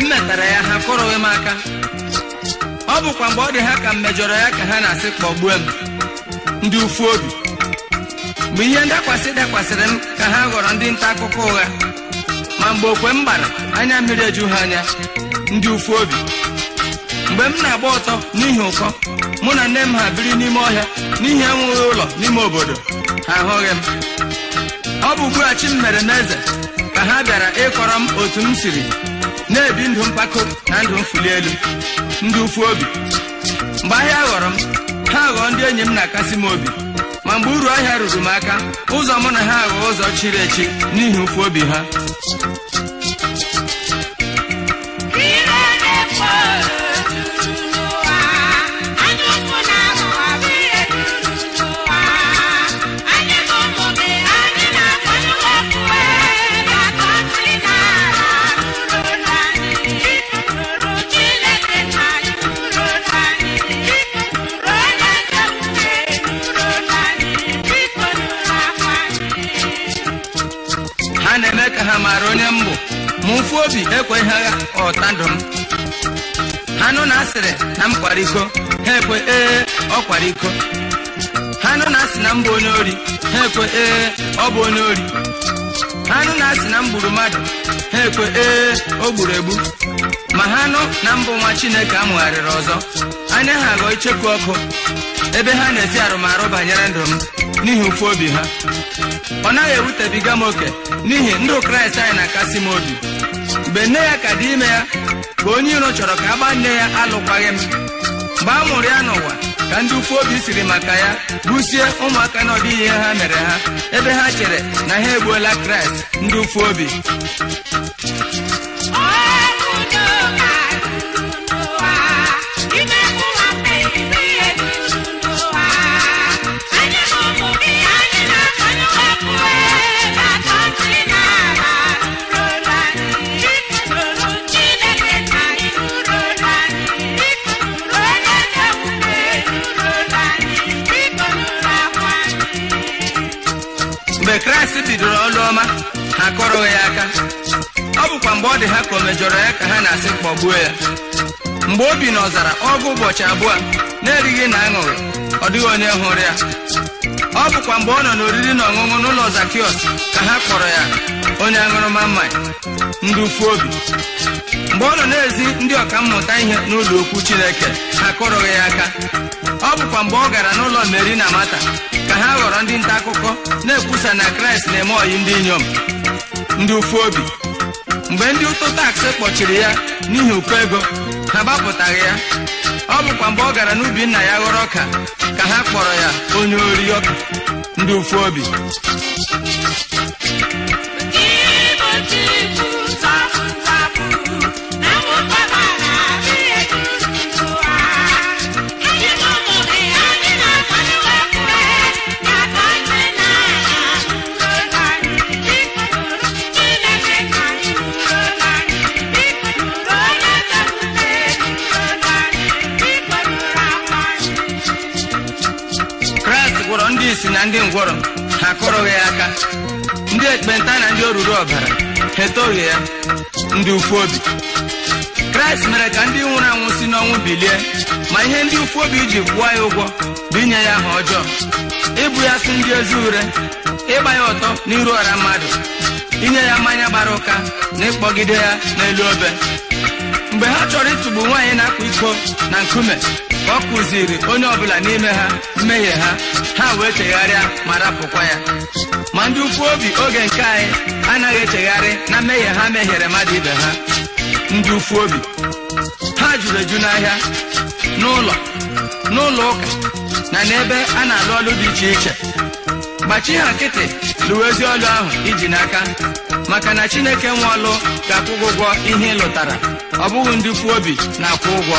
mgbe metara ya ha kụrụghị m aka ọ bụkwa mgbe ọ dị ha ka m mejọrọ ya ka ha na-asị kpọgbue m ndị ufu obi mgbe ihe ndakwasị dakwasịrị m ka ha ghọrọ ndị nta akụkọ ụgha ma mgbe okwe m gbara anya mmiri eju ha anya ndị ufu obi mgbe m na-agba ọtọ n'ihi ụkọ mụ na nne m ha biri n'ime ọhịa n'ihi enweghị ụlọ n'ime obodo ha ahụghị m ọ bụ ugbu m mere m eze ka ha bịara ịkọrọ m otu m siri na-ebi ndụ mpako na ndụ mfuli elu ndị obi mgbe ahịa ghọrọ m ha ghọọ ndị enyi m na-akasị m obi ma mgbe uru ahịa ruru m aka ụzọ mụ na ha aghọọ ụzọ chiri echi n'ihi ụfu obi ha mee ka ha mara onye mbụ ma mfu obi ekweghị agha ndụ m ha nụ na asịrị na m kwara iko ha ekwe ee ọ kwara iko ha nụ na asị na mbụ onye ori ha ekwe ee ọ bụ onye ori ha nụ na asị na m gburu mmadụ ha ekwe ee o gburu egbu ma ha nụ na mbụ nwa chineke amụgharịrị ọzọ anya ha agọ ọkụ ebe ha na-ezi arụmarụ banyere ndụ m n'ihi ụfụ obi ha ọ naghị ewutebiga m oke n'ihi ndụ kraịst anyị na-akasị m obi mgbe nne ya ka dị ime ya ka onye iro chọrọ ka a gbaa nne ya alụkwaghị m mgbe a mụrụ ya n'ụwa ka ndị ukwu obi siri maka ya busie ụmụaka na ihe ha mere ha ebe ha chere na ha egbuola kraịst ndị ukwu obi mgbe kraịst bidoro ọlụ ọma akọrọghị ya aka ọ bụkwa mgbe ọ dị ha ka o mejọrọ ya ka ha na-asị kpọgbuo ya mgbe o bi n'ọzara ọgụ ụbọchị abụọ na-erighị na aṅụghị ọ dịghị onye hụrụ ya ọ bụkwa mgbe ọ nọ n'oriri na ọṅụṅụ n'ụlọ Zakiọs ka ha kpọrọ ya onye aṅụrụma mmanya ndị obi mgbe ọ nọ n'ezi ezi ndị ọkammụta ihe n'ụlọ okwu chineke akụrụghị ya aka ọ bụkwa mgbe ọ gara n'ụlọ meri na mata ka ha ghọrọ ndị nta akụkọ na-ekwusa na kraịst na-eme ọyị ndị inyom ndị ụfụ obi mgbe ndị ụtụ taksị kpọchiri ya n'ihi ụkọ ego ha gbapụtaghị ya ọ bụkwa mgbe ọ gara n'ubi nna ya ghọrọ ọka ka ha kpọrọ ya onye ori ọka ndị ụfụ obi gwọrọ ndị isi na ndị ngwọrọ ha akụrụghị ya aka ndị ekpenta na ndị oruru ọbara ha etoghị ya ndị ukwu obi kraịst mere ka ndị nwụrụ anwụ si n'ọnwụ bilie ma ihe ndị ukwu obi ji ya ụgwọ bụ inye ya aha ọjọọ ịbụ ya si ndị ezi ure ịgba ya ọtọ n'iru ọra mmadụ inye ya mmanya gbara ụka na ịkpọgide ya n'elu obe mgbe ha chọrọ ịtụgbu nwaanyị na akwa iko na nkume ọ kụziri onye ọbụla n'ime ha mmehie ha ha wee chegharịa ma rapụkwa ya ma ndị ukwu obi oge nke anyị anaghị echegharị na mmehie ha mehiere mmadụ ibe ha ndị ukwu obi ha jụrụ eju n'ahịa n'ụlọ n'ụlọ ụka na n'ebe a na-alụ ọlụ dị iche iche gbachi ha nkịtị lụwa ezi ọlụ ahụ iji n'aka maka na chineke nwe ọlụ ga-akwụ ụgwọ ihe ị lụtara ọ bụghị ndị ukwu obi na-akwụ ụgwọ